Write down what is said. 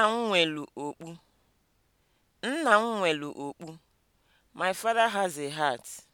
Nna m nwelu okpu. Nna m nwelu okpu. My father has a Heart."